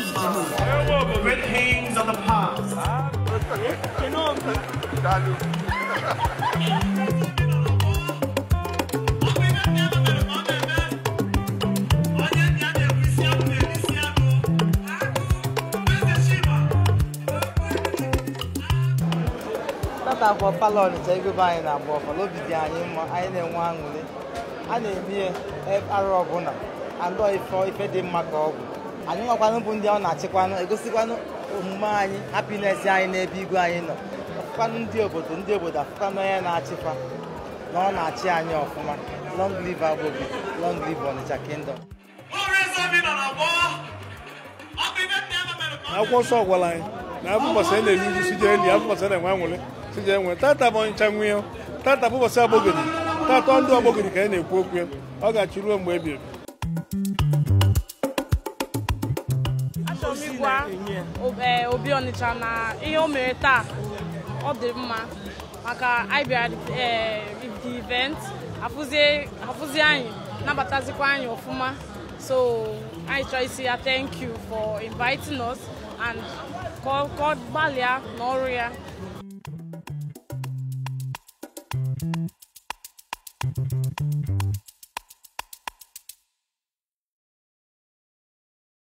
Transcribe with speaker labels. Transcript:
Speaker 1: tata and move. The
Speaker 2: na ọnịcha ego anyị na-agba ọfala obi dị anyị mma anyị na-enwe aṅụrị a na-eme arụ ọbụla ife dị mma ka ọgwụ anyị nwakwanụ bụ ndị ọ na-achịkwanụ egosikwanụ omume anyị hapinesi anyị n'ebe igwe anyị nọ afụkwanụ ndị obodo ndị obodo afụkwanụ onye na-achịkwa na ọ na-achị anyị ọfụma long live Agbobi long live Onitsha kingdom
Speaker 1: akwụkwọ nsọ gwara anyị na afọ ụbọchị anyị na-eri uju sije ndị afọ ụbọchị na-enwe anwụrị sije enwe tata bụ Onitsha nwe tata bụ ụbọchị agbogiri tata ndị agbogiri ka anyị na-ekwu okwu ọ ga-achị ruo mgbe ebi ebi
Speaker 3: Onigwa Obi Ọnịcha eh, na ihe o mere taa ọ dị mma maka anyị eh, the event afụzie anyị nabatazikwa anyị ọfụma so anyị chọrọ isi ya thank you for inviting us and ka gbalịa n'ọrụ ya
Speaker 1: Thank
Speaker 3: you.